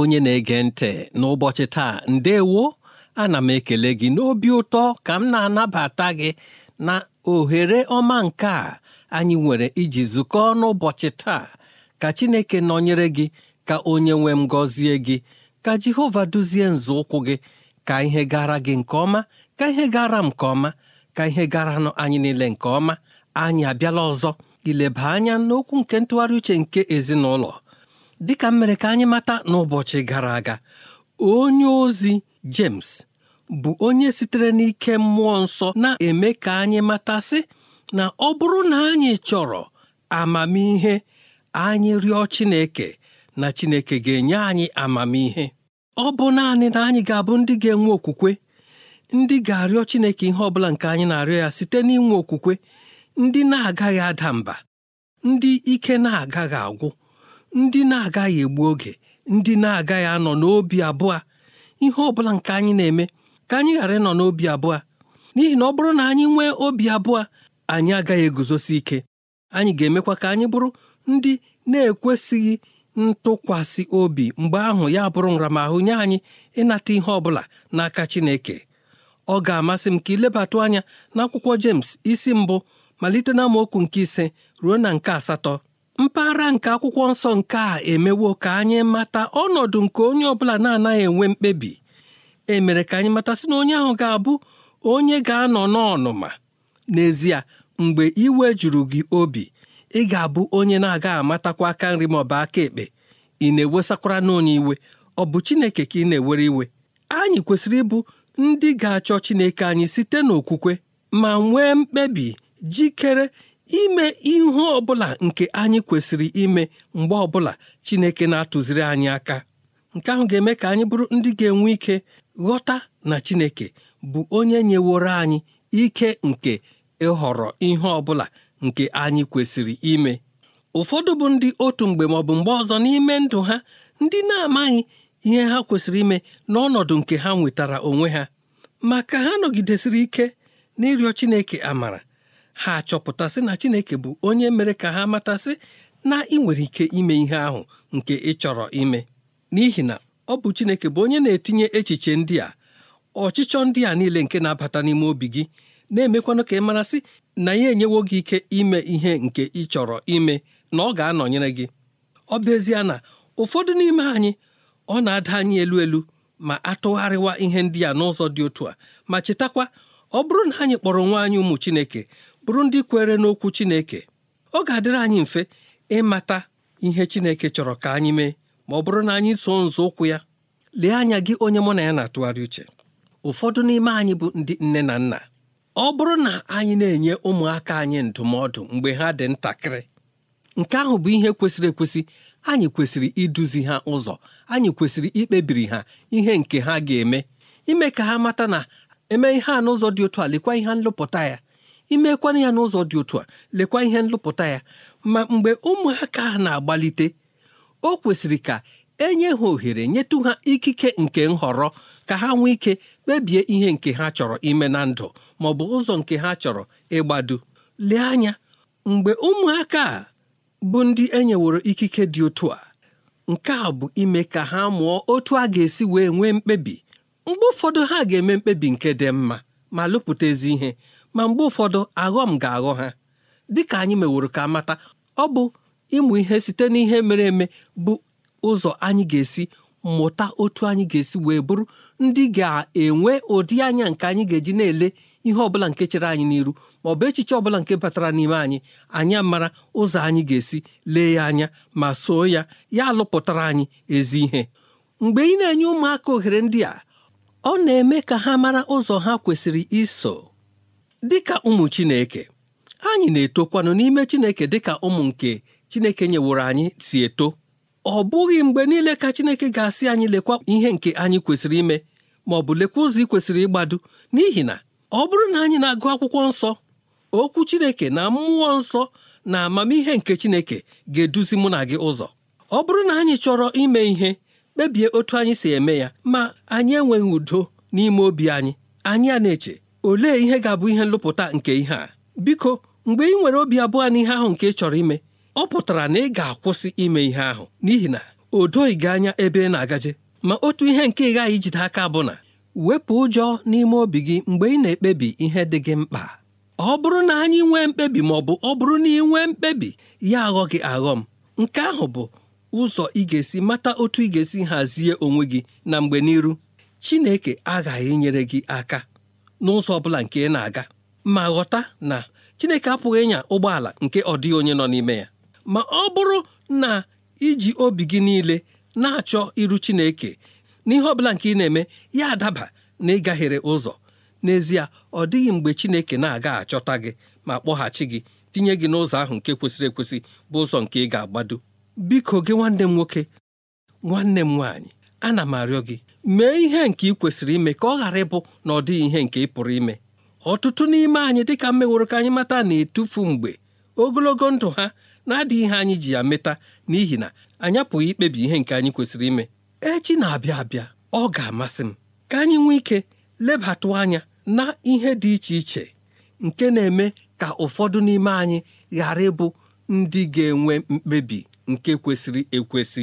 onye na-ege ntị n'ụbọchị taa ndewo ana m ekele gị n'obi ụtọ ka m na-anabata gị na ohere ọma nke a anyị nwere iji zukọọ n'ụbọchị taa ka Chineke nọnyere gị ka onye nwe m gọzie gị ka Jehova duzie nzọụkwụ gị ka ihe gara gị nke ọma ka ihe gara m nke ọma ka ihe garanụ anyị niile nke ọma anyị abịala ọzọ ileba anya n'okwu nke ntụgharị uche nke ezinụlọ dịka m ka anyị mata n'ụbọchị gara aga onye ozi James bụ onye sitere n'ike mmụọ nsọ na-eme ka anyị matasị na ọ bụrụ na anyị chọrọ amamihe anyị rịọ Chineke na Chineke ga-enye anyị amamihe ọ bụ naanị na anyị ga-abụ ndị ga-enwe okwukwe ndị ga-arịọ Chineke ihe ọ bụla nke anyị na-arịọ ya site n'inwe okwukwe ndị na-agaghị ada mba ndị ike na-agaghị agwụ ndị na-agaghị egbu oge ndị na-agaghị anọ n'obi abụọ ihe ọ bụla nke anyị na-eme ka anyị ghara ịnọ n'obi abụọ n'ihi na ọ bụrụ na anyị nwee obi abụọ anyị agaghị eguzosi ike anyị ga-emekwa ka anyị bụrụ ndị na-ekwesịghị ntụkwasị obi mgbe ahụ ya bụrụ nramahụ nye anyị ịnata ihe ọ bụla n'aka Chineke ọ ga-amasị m ka ilebatụ anya n'akwụkwọ James isi mbụ malite na amaokwu nke ise ruo na nke asatọ mpaghara nke akwụkwọ nsọ nke a emewo ka anyị mata ọnọdụ nke onye ọbụla na-anaghị enwe mkpebi e mere ka anyị mata sị na onye ahụ ga-abụ onye ga-anọ n'ọnụma n'ezie mgbe iwe juru gị obi ị ga-abụ onye na-aga amatakwa aka nri ma ọ bụ aka ekpe ị na-ewesakwara n'onye iwe ọ bụ Chineke ka ị na-ewere iwe anyị kwesịrị ịbụ ndị ga-achọ Chineke anyị site n'okwukwe ma nwee mkpebi jikere ime ihe ọbụla nke anyị kwesịrị ime mgbe ọbụla Chineke na-atụziri anyị aka nke ahụ ga-eme ka anyị bụrụ ndị ga-enwe ike ghọta na Chineke bụ onye nyeworo anyị ike nke ịhọrọ ihe ọbụla nke anyị kwesịrị ime ụfọdụ bụ ndị otu mgbe ma bụ mgbe ọzọ n'ime ndụ ha ndị na-amaghị ihe ha kwesịrị ime n'ọnọdụ nke ha nwetara onwe ha ma ka ha nọgidesịrị ike n'ịrịọ Chineke amara ha achọpụtasị na Chineke bụ onye mere ka ha matasị na ị nwere ike ime ihe ahụ nke ị chọrọ ime n'ihi na ọ bụ Chineke bụ onye na-etinye echiche ndị a ọchịchọ ndị a niile nke na-abata n'ime obi gị na-emekwanụ ka ị marasị na ya enyewo gị ike ime ihe nke ị chọrọ ime na ọ ga-anọnyere gị ọ bụ ezie na ụfọdụ n'ime anyị ọ na-ada anyị elu elu ma atụgharịwa ihe ndị a n'ụzọ dị otu a ma chetakwa ọ bụrụ na anyị kpọrọ nwa anyị ụmụ Chineke bụrụ ndị kwere n'okwu Chineke ọ ga-adịrị anyị mfe ịmata ihe Chineke chọrọ ka anyị mee ma ọ bụrụ na anyị so ụkwụ ya lee anya gị onye mụ na ya na-atụgharị uche ụfọdụ n'ime anyị bụ ndị nne na nna ọ bụrụ na anyị na-enye ụmụaka anyị ndụmọdụ mgbe ha dị ntakịrị nke ahụ bụ ihe kwesịrị ekwesị anyị kwesịrị iduzi ha ụzọ anyị kwesịrị ikpebiri ha ihe nke ha ga-eme ime ka ha mata na eme ihe a n'ụzọ dị otu a lekwa ihe nlụpụta ya imekwana ya n'ụzọ dị otu a lekwa ihe nlụpụta ya ma mgbe ụmụaka na-agbalite o kwesịrị ka enye ha ohere nyetụ ha ikike nke nhọrọ ka ha nwee ike kpebie ihe nke ha chọrọ ime na ndụ ma ọ bụ ụzọ nke ha chọrọ ịgbado lee anya mgbe ụmụaka a bụ ndị enyeworo ikike dị otu a nke a bụ ime ka ha mụọ otu a ga-esi wee nwee mkpebi mgbe ụfọdụ ha ga-eme mkpebi nke dị mma ma lụpụta ezi ihe ma mgbe ụfọdụ aghọm ga-aghọ ha dịka anyị meworo ka mata ọ bụ ịmụ ihe site n'ihe mere eme bụ ụzọ anyị ga-esi mụta otu anyị ga-esi wee bụrụ ndị ga-enwe ụdị anya nke anyị ga-eji na-ele ihe ọbụla nke chere anyị n'iru ma ọ bụ echiche ọbụla nke batara n'ime anyị anyị mara ụzọ anyị ga-esi lee ya anya ma soo ya ya alụpụtara anyị ezi ihe mgbe ị na-enye ụmụaka ohere ndị a ọ na-eme ka ha mara ụzọ ha kwesịrị iso dịka ụmụ Chineke anyị na-etokwanụ n'ime Chineke dịka ụmụ nke Chineke nyeworo anyị si eto ọ bụghị mgbe niile ka Chineke ga-asị anyị lekwa ihe nke anyị kwesịrị ime ma ọ bụ lekwa ụzọ ị kwesịrị ịgbado n'ihi na ọ bụrụ na anyị na-agụ akwụkwọ nsọ okwu Chineke na mmụọ nsọ na amamihe nke Chineke ga-eduzi mụ na gị ụzọ ọ bụrụ na anyị chọrọ ime ihe kpebie otu anyị si eme ya ma anyị enweghị udo n'ime obi anyị anyị a na-eche olee ihe ga-abụ ihe nlụpụta nke ihe a biko mgbe ị nwere obi abụọ n'ihe ahụ nke ị chọrọ ime ọ pụtara na ị ga-akwụsị ime ihe ahụ n'ihi na o doghị gị anya ebe ị na-agaje ma otu ihe nke ị ghaghị ijide aka bụ na wepụ ụjọ n'ime obi gị mgbe ị na-ekpebi ihe dị gị mkpa ọ bụrụ na anyị nwee mkpebi ma ọ bụ ọ bụrụ na ị nwee mkpebi ya aghọ gị aghọ m nke ahụ bụ ụzọ ị ga-esi mata otu ị ga-esi hazie onwe gị na mgbe n'iru Chineke aghaghị inyere gị aka n'ụzọ ọ bụla nke ị na-aga ma ghọta na Chineke apụghị ịnya ụgbọala nke ọ dịghị onye nọ n'ime ya ma ọ bụrụ na iji obi gị niile na-achọ iru Chineke n'ihe ọ bụla nke ị na-eme ya adaba na ịgaghere ụzọ n'ezie ọ dịghị mgbe Chineke na-aga achọta gị ma kpọghachi gị tinye gị n'ụzọ ahụ nke kwesịrị ekwesị bụ ụzọ nke ị ga-agbado biko gị nwanne m nwoke nwanne m nwaanyị ana m arịọ gị mee ihe nke ị kwesịrị ime ka ọ ghara ịbụ na ọ dịghị ihe nke ị pụrụ ime ọtụtụ n'ime anyị dịka mmeworo ka anyị mata na-etufu mgbe ogologo ndụ ha na-adịghị ihe anyị ji ya meta n'ihi na anyị apụghị ikpebi ihe nke anyị kwesịrị ime echi na-abịa abịa ọ ga-amasị m ka anyị nwee ike lebatụ anya na ihe dị iche iche nke na-eme ka ụfọdụ n'ime anyị ghara ịbụ ndị ga-enwe mkpebi nke kwesịrị ekwesị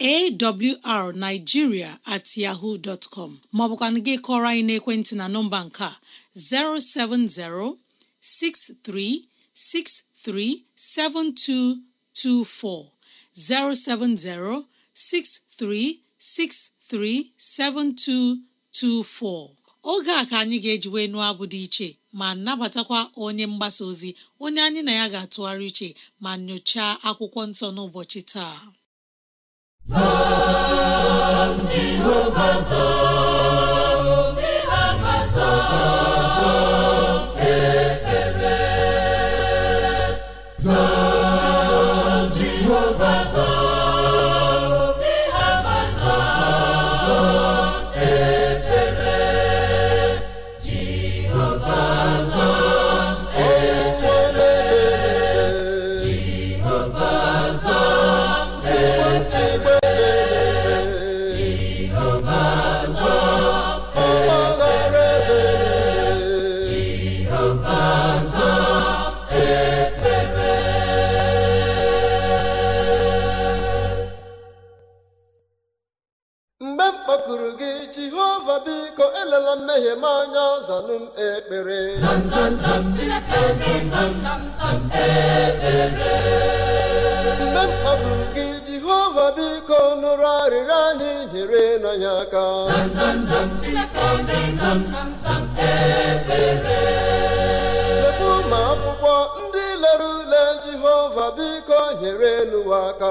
awrnigeria at yahoo dot com maọbụkwana gị kọrọ anyị n'ekwentị na nọmba nke a 070-6363-7224, 070 07063637224 7224 oge a ka anyị ga-ejiwe nụọ abụ dị iche ma nabatakwa onye mgbasa ozi onye anyị na ya ga-atụgharị iche ma nyochaa akwụkwọ nsọ n'ụbọchị taa Zan Jehova zan. elela mmehie m anya zanụ m ekpere mgbe m kpaburu gị jehova biko nụrụ arịrịọ anyị nyere n'anya aka lepu ma akwụkwọ ndị lere ule jehova biko nyere n'ụwa aka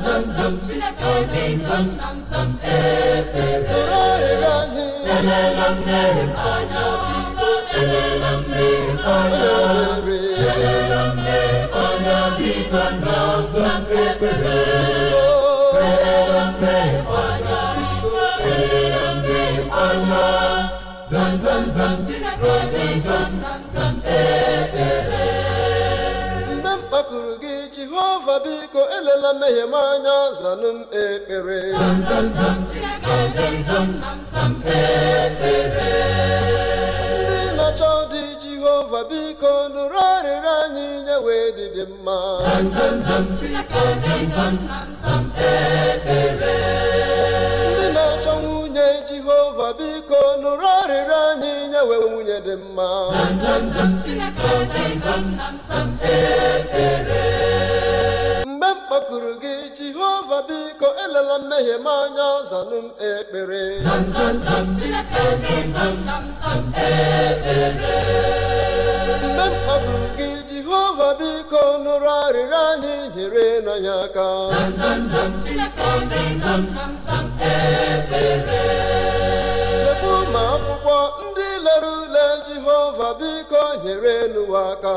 zam zam Chineke zam zam zam ekpere elela mmehie m anya biko elela mmehie m anya elela mmehie m anya biko nna zam ekpere elela mmehie anya biko elela mmehie anya zam zam zam zam zam zam gị jehova biko elela mmehie m anya zanụ m ekpere ndị na-achọ ọdị jehova biko nụrụ arịrịọ anyị nye wee dịdị mma ndị na-achọ nwunye jehova biko nụrụ arịrịọ anyị nye wee nwunye dị mma ekpere. ife biko elela mmehie m anya zanụ m ekpere mgbe m kpọburu gị jehova biko nụrụ arịrịọ anyị nyere n'anya aka lekwu ma akwụkwọ ndị lere ule jehova biko nyere n'ụwa aka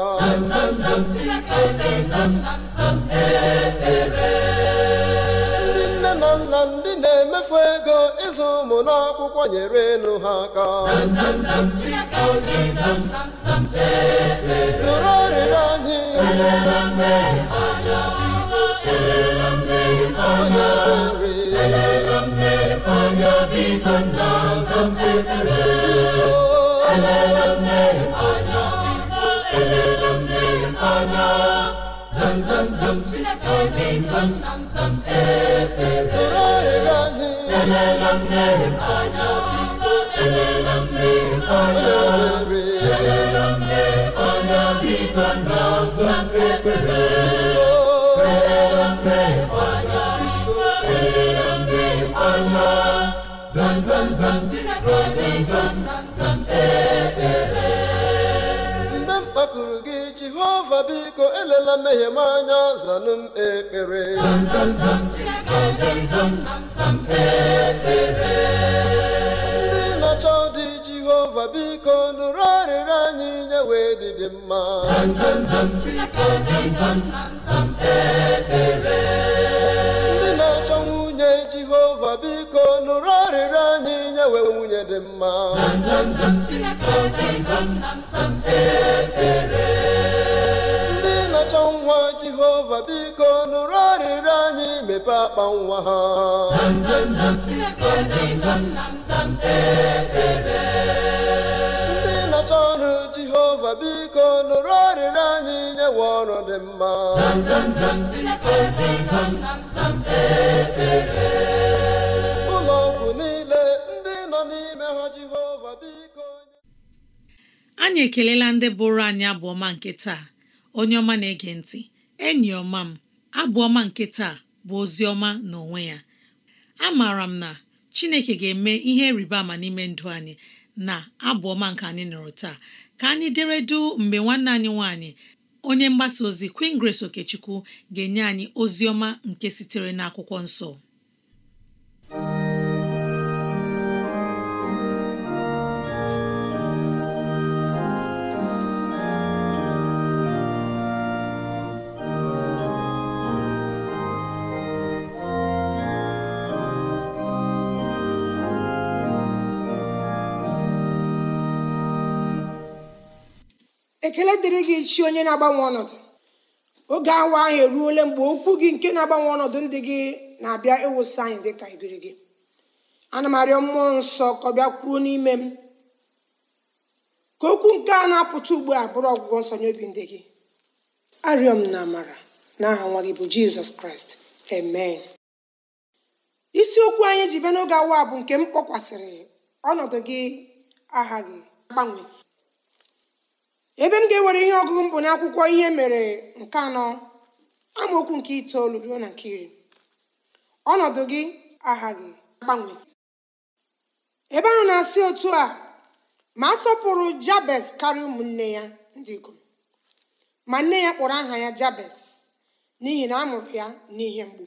mmefu ego ịzụ ụmụ n'akwụkwọ nyere elu ha aka nụrụ arịrịọ anyị onye kwere zam zam zam Chineke oji zam zam zam ekpere elele mmehie anya biko elele mmehie na biko elela mmehie m anya zanụ ekpere ndị na-achọ dị jehova biko nụrụ arịrị anyị nyewe wee dị mma ndị na-achọ nwunye jehova biko nụrụ arịrị anyị nyewe nwunye dị mma jehova biko nụrụ arịrịọ anyị mepe akpa nwa ha ndị nọcha ọrụ jehova biko nụrụ arịrịọ anyị nyewe ọrụ dị mma ụlọ ọgwụ niile ndị nọ n'ime ha jehova biko anyị ekelela ndị bụrụ anyị abụ ọma nke taa onye ọma na-ege ntị enyi ọma m abụ ọma nke taa bụ ozi ọma n'onwe ya a amaara m na Chineke ga-eme ihe rịba ama n'ime ndụ anyị na abụ ọma nke anyị nụrụ taa ka anyị deredu mgbe nwanne anyị nwanyị onye mgbasa ozi Queen Grace Okechukwu ga-enye anyị ozi ọma nke sitere n'akwụkwọ nsọ ekele dịrị gị chi onye na-agbanwe ọnọdụ oge awa ahụ eruole mgbe okwu gị nke na-agbanwe ọnọdụ ndị gị na-abịa ịwụsị anyị dị ka ibiri gị ana m arịọ mmụọ nsọ ka ọ bịa kwuo n'ime m ka okwu nke a na-apụta ugbu a bụrụ ọgwụgwọ nsọ nye obi ndị gị arịọ m na amara n'aha nwa gị bụ jizọs kraịst amen isiokwu anyị ji bịa n'oge awa bụ nke m kpọkwasịrị ọnọdụ gị aha gị agbanwe ebe m ga-ewere ihe ọgụgụ mbụ na n'akwụkwọ ihe mere nke anọ amaokwu nke itoolu ruo na nke iri ọnọdụ gị aghaghị agbanwe ebe ahụ na-asị otu a ma a sọpụrụ jabes karịa ụmụnne ya ndị ikom ma nne ya kpọrọ aha ya jabes n'ihi na a ya n'ihe mgbu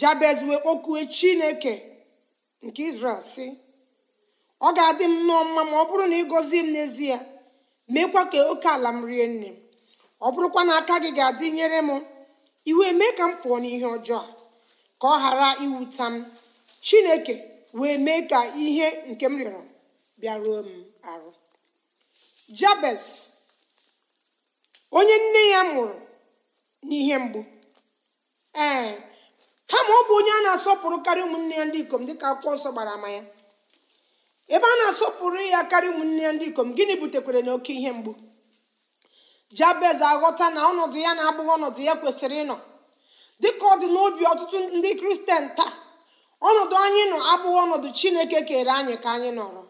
jabez wee kpokuo chineke nke izrel si ọ ga-adị m nnọọ mma ma ọ bụrụ na ị gọzie m n'ezie meekwa ka oke ala m rie nne m ọ bụrụkwa na aka gị ga-adị nyere m iwe mee ka m pụọ n'ihe ọjọọ ka ọ ghara iwuta m chineke wee mee ka ihe nke m rịọrọ bịaruo m arụ jabes onye nne ya mụrụ n'ihe mgbu ee kama ọ bụ onye a na-asọpụrụ ụmụnne ya ndị ikom dịka akwụkwọ nsọ gbara ama ya ebe a na-asọpụrụ ya karị ụmụnne ya ndị ikom gịnị butekwere na oke ihe mgbu jabez aghọta na ọnọdụ ya na-abụghị ọnọdụ ya kwesịrị ịnọ dịka ọ dị n'obi ọtụtụ ndị kristian taa ọnọdụ anyị nọ abụghị ọnọdụ chineke kere anyị ka anyị nọrọ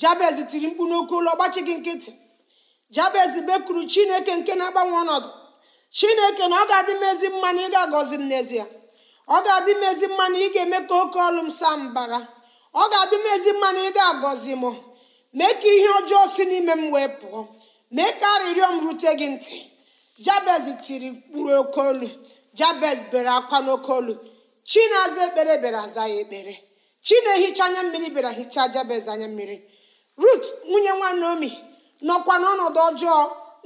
jabez tiri mkpu n'oke ụlọ ọgbachi gị nkịtị jabez bekuru chineke nke na-agbanwe ọnọdụ chineke na ọ ga-adị m ezi mma na ị ga m n'ezie ọ ga-adị m ezi mma na ị ga-eme ka oke ọlụ m saa mbara ọ ga-adị m ezi mma na ị ga-agọzi m mee ka ihe ọjọọ si n'ime m wee pụọ mee ka arịrịọ m rute gị ntị jabez tiri mkpụrụ oke olu jabez bere akwa n'oke olu aza ekpere bịara aza ya ekpere chi na-ehicha anya mmiri bịara hichaa jabez anya mmiri rut nwunye nwa naomi nọkwa n'ọnọdụ ọjọọ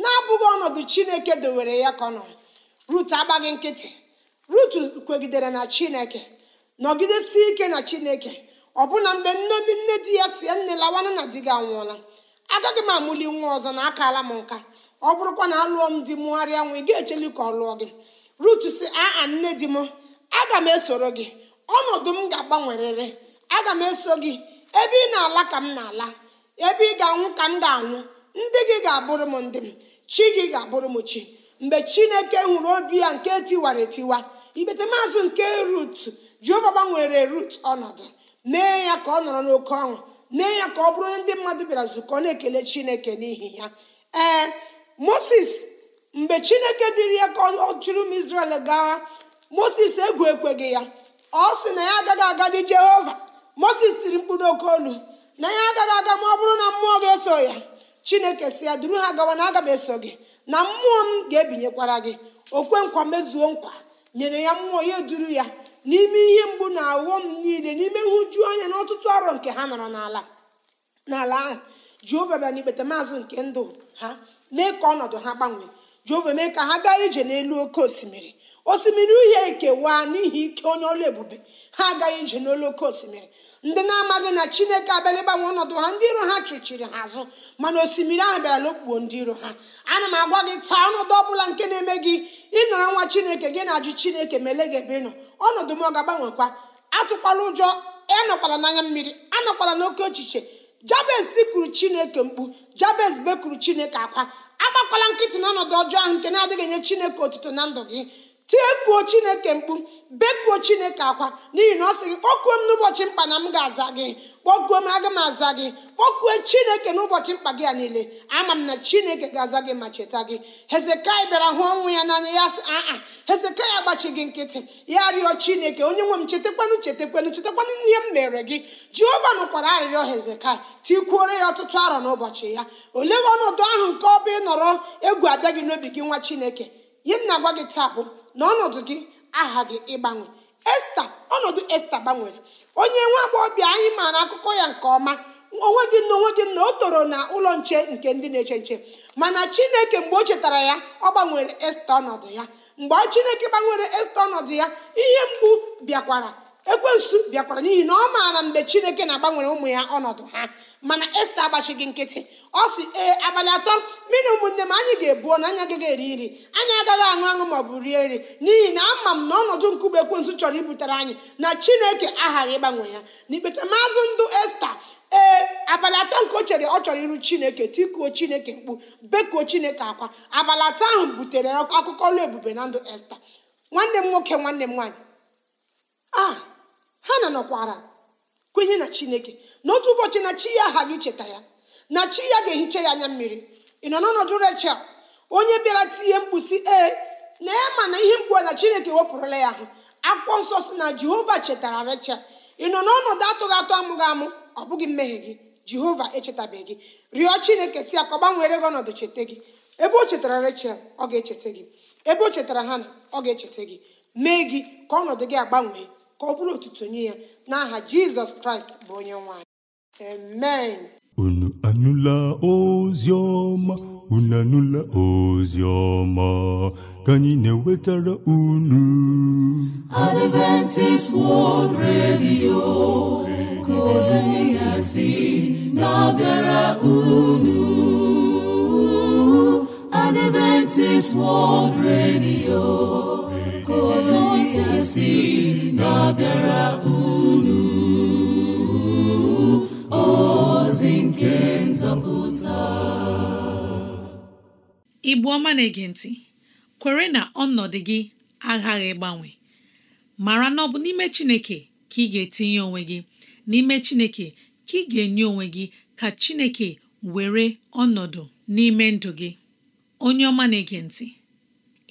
na-abụghị ọnọdụ chineke dowere ya ka ọ rut agbaghị nkịtị rut kwegidere na chineke nọgidesi ike na chineke ọbụna mgbe nne ndị nne di ya si nne lawanụ na di gị anwụọla agaghị m amụli nwa ọzọ na akala m nka ọ bụrụkwa na alụọ m di mụgharịa nwa ị ga-echeli ka ọ lụọ gị rut si aa nne di m aga m esoro gị ọnọdụ m ga-agbanwerịrị aga m eso gị ebe ị na-ala ka m na-ala ebe ị ga-anwụ ka m ga-anwụ ndị gị ga-abụrụ m ndị m chi gị ga-abụrụ m chi mgbe chineke hụrụ obi ya nke tiwara etiwa igbete maazị nke rut jeova gbanwere rut ọnọdụ mee ya ka ọ nọrọ n'oke ọṅụ mee ya ka ọ bụrụ ndị mmadụ bịara nzukọ na-ekele chineke n'ihi ya ee moses mgbe chineke dịrị ya ka ọ chụrụ m israel gaa moses egwu ekweghị ya ọ sị na ya agaghị dị jehova moses tiri mkpụrụ oke olu na ya agaghị aga ma ọ bụrụ na mmụọ ga-eso ya chineke si ya duru ha gawa na aga m eso gị na mmụọ m ga-ebinyekwara gị okwe nkwa mezuo nkwa nyere ya mmụọ ya duru ya n'ime ihe mgbu na m niile n'ime nhụju anya na ọtụtụ arọ nke ha nọrọ n'ala n'ala ahụ jehova bịa ikpete maazị nke ndụ ha mee ka ọnọdụ ha gbanwee jehova mee ka ha gaa ije n'elu oke osimiri osimiri uhie ekewaa n'ihi ike onye ọlụ ebube ha agaghị ije n'elu oke osimiri ndị na-amaghị na chineke abịala ịgbanwe ọnọdụ ha ndị iro ha chụchiri ha azụ mana osimiri ahụ bịara n'okpukpo ndị iro ha ana m agwa gị taa ọnọdụ ọ bụla nke na-eme gị ịnọrọ nwa chineke gị na-ajụ chineke ma ele gị ebe ịnọ ọnọdụ m ọ ga-agbanwekwa atụkwala ụjọ ịnọkwala n'anya mmiri anọkwala n'oke ochiche jabez kwuru chineke mkpu jabez bekuru chineke akwa agbakwala nkịtị na ọjọọ ahụ nke na-adịghị enye chineke otuto na ndụ gị tiekwuo chineke mkpu bekuo chineke akwa n'ihi na ọ sị gị kpọkuo m n'ụbọchị mkpa na m ga-aza gị kpọkuo m aga m aza gị kpọkuo chineke n'ụbọchị mkpa gị ya niile ama m na chineke ga-aza gị ma cheta gị hezekai bịara hụ ọnwụ ya n'anya ya sị aa hezekai agbachi gị nkịtị ya rịọ chineke onye nwe m chetakwanụ chetakwanụ chetakwanụ ihe m mere gị jehova nụkwara arịrịọ hezekai tikwuore ya ọtụtụ arọ n'ụbọchị ya olee ọnọdụ ahụ nke ọ bụ ịnọrọ egwu abịa gị n'obi gị nwa chineke ihe na-agwa gị taa bụ na ọnọdụ gị ịgbanwe esta ọnọdụ esta gbanwere onye nwa agbọghọbịa anyị maara akụkọ ya nke ọma onwe gị na onwe gị na o toro na ụlọ nche nke ndị na-eche nche mana chineke mgbe o chetara ya ọ gbanwere esta ọnọdụ ya mgbe chineke gbanwere esta ọnọdụ ya ihe mgbu bịakwara ekwensu bịakwara n'ihi na ọ maara mgbe chineke na-agbanwere ụmụ ya ọnọdụ ha mana esta agbachighị nkịtị ọ si ee abalị atọ mmiri ụmụnne m anyị ga-ebuo na anyị agaghị eri nri anyị agaghị aṅụ aṅụ maọbụ rie nri n'ihi na ama m na ọnọdụ nkume ekwensu chọrọ ibutere anyị na chineke aghaghị ịgbanwe ya n'ikpeta maazụ ndụ esta ee abalị atọ nke o chere ọ chọrọ iru chineke tikuo chineke mkpu bekuo chineke akwa abalị atọ ahụ butere akụkọ ọlụ ebube na ndụ esta nwanne m nwoke nwanne m nwaanyị a ah! ha na nọkwara kwenye na chineke na otu ụbọchị na chi ya aghaghị cheta ya na chi ya ga-ehicha ya anya mmiri ị nọ n'ọnọdụ rechel onye bịara tinye mkpusi ee na ya ma na ihe mgbu na chineke wepụrụla ya ahụ akwụkwọ nsọ si na jehova chetara rechel ị nọ n'ọnọdụ atụghị atụ amụghị amụ ọ bụghị mmehie gị jehova echetabeghị gị rịọ chineke si ya ka ọ gbanwere gị ọnọdụ cheta gị ebe o chetara rechel ọ ga-echeta gị ebe o chetara na ọ ga-echeta gị mee gị ka ọnọdụ gị agbanwee ka ọ bụrụ otuto nye ya n'aha jizọs kraịst bụ onye nwanyị amen unu anụla ozi ọma unu anụla ozi ọma ka anyị na-ewetara unu Adventist World Radio ka ozi na-abịara unu Adventist World Radio ka ozi asị na-abịara unu ozi nke nzọpụta ịbụ ọma na-ege ntị kwere na ọnọdụ gị aghaghị gbanwe mara na ọ bụ n'ime Chineke ka ị ga-etinye onwe gị n'ime Chineke ka ị ga-enye onwe gị ka Chineke were ọnọdụ n'ime ndụ gị onye ọma na-ege ntị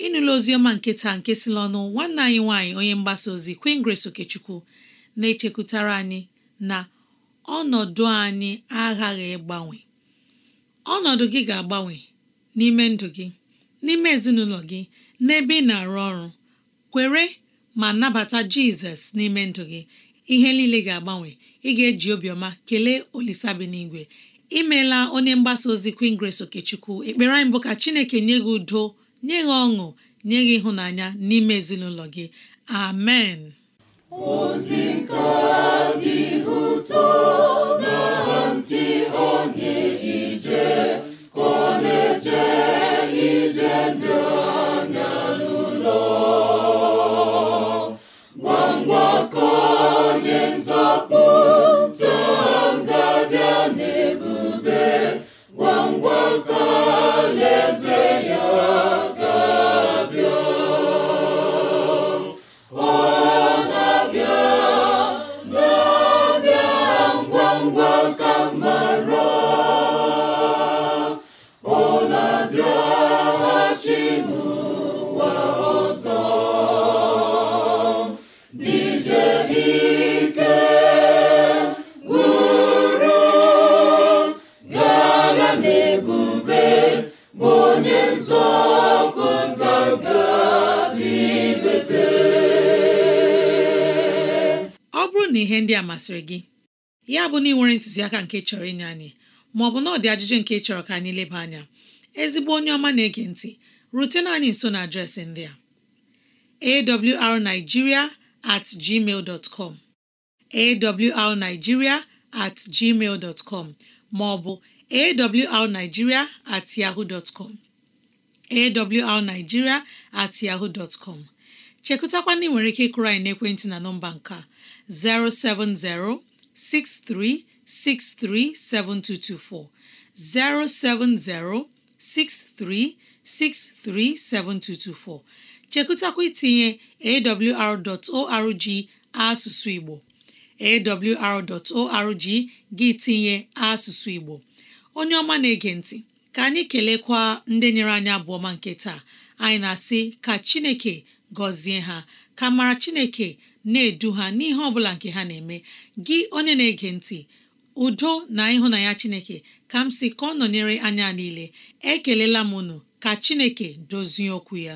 ịnụla oziọma nke taa nke si n'ọnụ nwanne anyị nwanyị onye mgbasa ozi Queen Grace Okechukwu na-echekwutara anyị na ọnọdụ anyị aghaghị ịgbanwe ọnọdụ gị ga-agbanwe n'ime ndụ gị n'ime ezinụlọ gị n'ebe ị na-arụ ọrụ kwere ma nabata Jizọs n'ime ndụ gị ihe niile ga-agbanwe ị ga-eji obiọma kelee olisabinigwe imeela onye mgbasa ozi Queen Grace Okechukwu ekpere anyị bụ ka Chineke nye gị udo nye gị ọṅụ nye gị ịhụnanya n'ime ezinụlọ gị amen ozi nke dị ụtọ na ntị onye ije ka ọ na ije ndụ ihe ndị a masịrị gị ya bụ na ị nwere ntụziaka nke chọrọ inye anyị ma ọ bụ na ajụjụ nke chọrọ ka anyị leba anya ezigbo onye ọma na-ege ntị rutena anyị nso na adreesị ndị a awrnigeria at gmail com at gmail dot com ma ọ bụ at yahoo dot com at yahoo dot chekụtakwana ị ike ịkụrụ anyị n'ekwentị na nọmba nke 070 07063637224 chekụtakwa itinye awr.org asụsụ Igbo awr.org gị tinye asụsụ Igbo onye ọma na-ege ntị ka anyị kelekwa ndị nyere anyị abụọma nke taa anyị na-asị ka Chineke gọzie ha ka mara chineke na-edu ha n'ihe ọbụla nke ha na-eme gị onye na-ege ntị udo na ịhụnanya chineke ka m si ka ọ nọnyere anya niile ekelela m unu ka chineke dozie okwu ya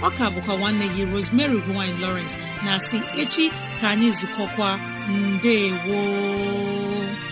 ọ ka bụkwa nwanne gị Rosemary gine lowrence na si echi ka anyị zukọkwa mbe woo